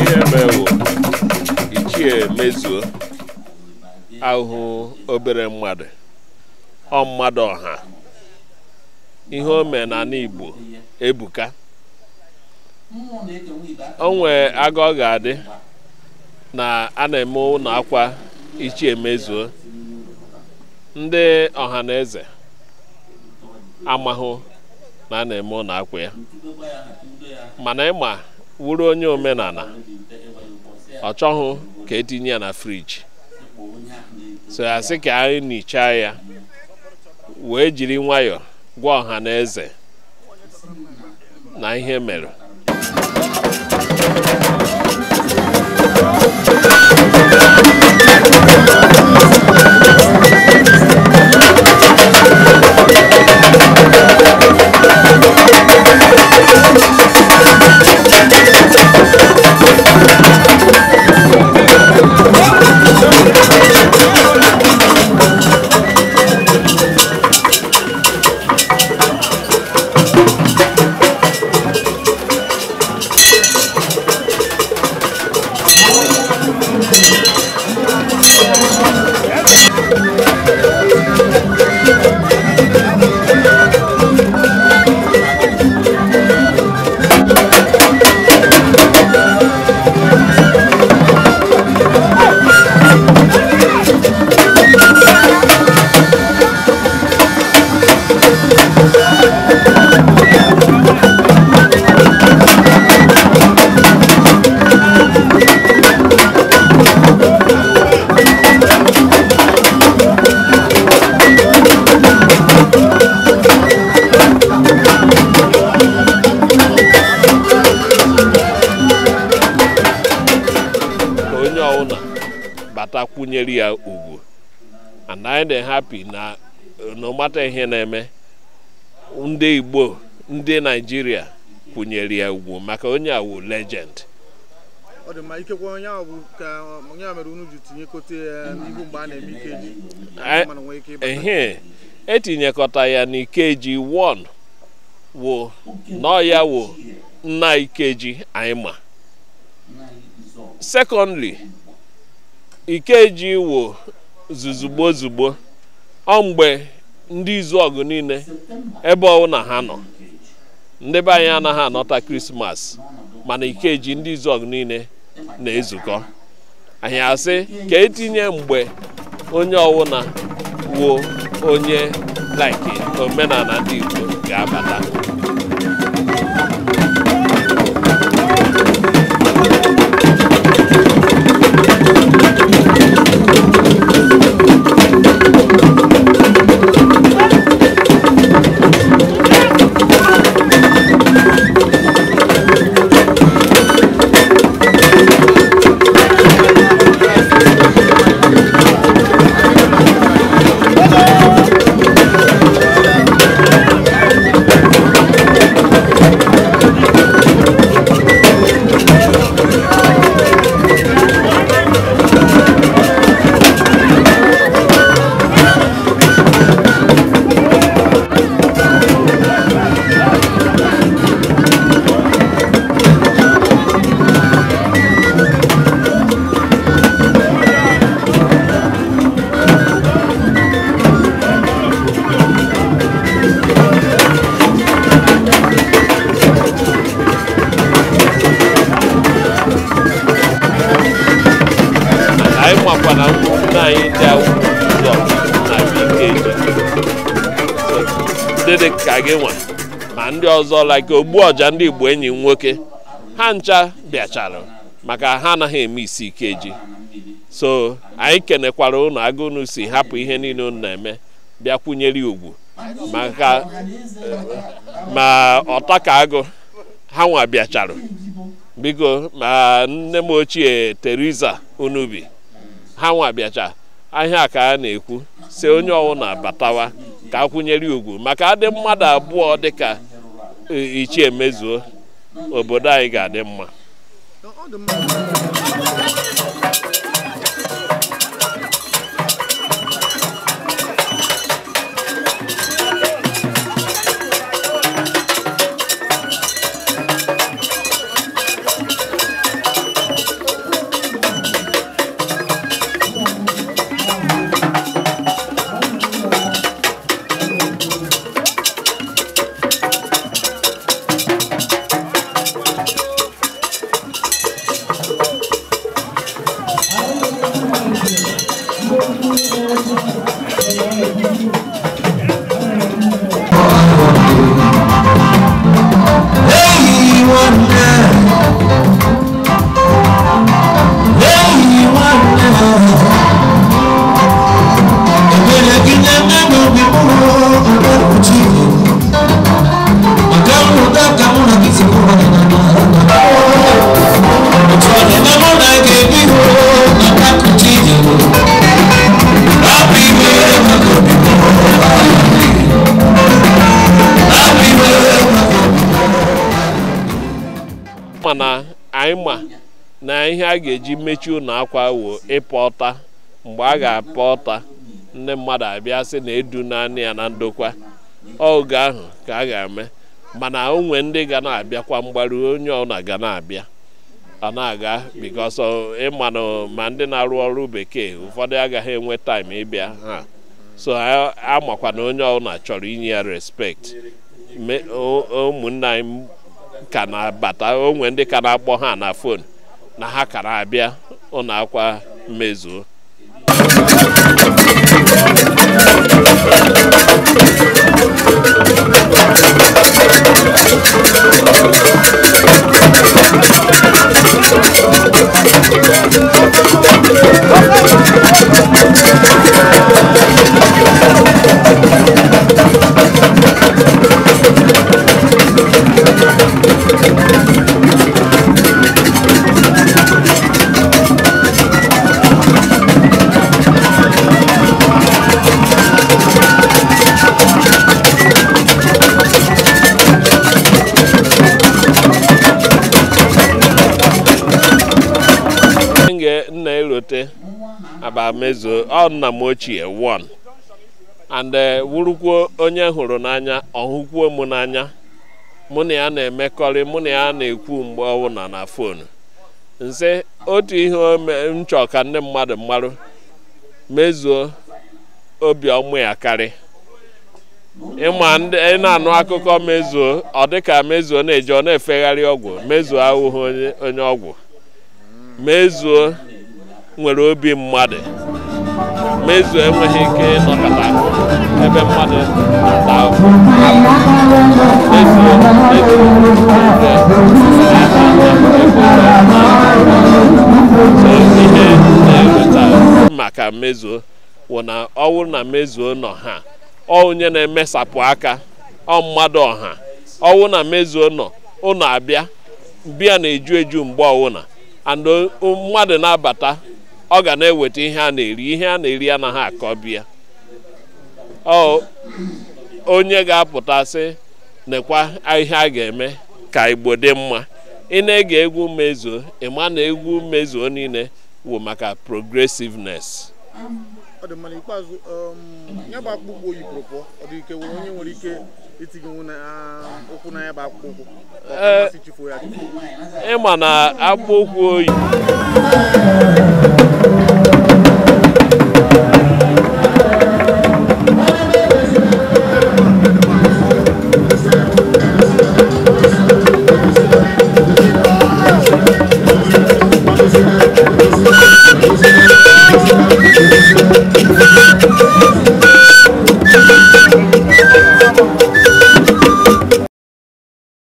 ihe mewo ichie mezuo ahụhụ obere mmadụ ọ mmadụ ọha ihe o mee na Igbo ebuka o nwee aga ọ ga-adị na a na-eme ụlọ akwa ichie mezuo ndị ọha na eze amahụ na a na-eme ụlọ akwụ ya mana ịma wuru onye omenala ọ chọghị ka etinye ya na friji so ya sị ka anyị nnicha ya wee jiri nwayọ gwa ọha na eze na ihe mere bata kwụnyere ya ugwu and anyị dị hapi na n'ọmata ihe na-eme ndị igbo ndị naijiria kwụnyere ya ugwu maka onye awu legend ọ dị ikekwe onye ka onye a mere unu ji tinyekọta ya eh, n'ihu mgbe a na-eme ikeji mana nwee ike ịbata e ya n'ikeji nna ikeji anyị ma ikeji wo zuzugbo zugbo ọ mgbe ndị izu ọgụ niile ebe owuna ha nọ ndị be anyị anaghị anọta krismas mana ikeji ndị izu ọgụ niile na-ezukọ anyị asị ka etinye mgbe onye ọwụna wuo onye like omenala ndị Igbo ga-abata ndị dị ka gị nwa ma ndị ọzọ like ọja ndị igbo enyi nwoke ha ncha bịachara maka ha anaghị eme isi ike ji so anyị kenekwara ụnụ agụnụ si hapụ ihe niile ụnụ na-eme bịakwunyere ugwu maka ma ọtaka agụ ha nwa bịachara biko ma nne m ochie teriza Unubi ha nwa bịacha ahịa ka a na-ekwu si onye ọwụna batawa ka akwụnyere ugwu maka adị mmadụ abụọ dịka e, ichie mezuo obodo anyị ga-adị mma anyị ma na ihe a ga-eji mechie ụlọ akwa wo ịpọta mgbe a ga-apọ ọta ndị mmadụ abịa sị na edu naanị ya na ndokwa oge ahụ ka a ga-eme mana onwe ndị ga na-abịakwa mgbaru onye ọna ga na-abịa ọ na-aga bikos ịmanụ ma ndị na-arụ ọrụ bekee ụfọdụ agaghị enwe taịm ịbịa ha so amakwa na onye ọbụla chọrọ inye ya respekt ụmụnna anyị ka na-abata onwe ndị ka na-akpọ ha na fon na ha ka na-abịa ụlọ akwa mmezuo wute abamezuo ọ nna m ochie one and eh, wurukwuo onye hụrụ n'anya ọhụkwuo m n'anya mụ na ya na-emekọrị mụ na ya na-ekwu mgbe ọbụla na fonu nse otu ihe m chọọ ka ndị mmadụ mmarụ mezuo obiọma ya karị ịma ndị na-anụ akụkọ mezuo ọ dịka mezuo na-eje ọ na-efegharị ọgwụ mezuo ahụhụ onye ọgwụ mezuo nwere obi mmadụ mezu enweghị ike ịnọkọta ebe mmadụ na ihe na-eweta maka mmezuo wụ na ọnwụ na mmezuo nọ ha ọ onye na-emesapụ aka ọ mmadụ ọha ọwụ na mmezuo nọ ụnọ abịa bịa na-eju eju mgbe ọwụna and mmadụ na-abata ọ ga na-eweta ihe a na-eri ihe a na-eri anaghị akọbịa ọ onye ga-apụta sị nekwa ihe a ga-eme ka igbo dị mma ị na-ege egwu mezuo ịma na egwu mezuo niile wụ maka progressiveness ọ Um, ịma na akpụkpọ ụkwụ oyi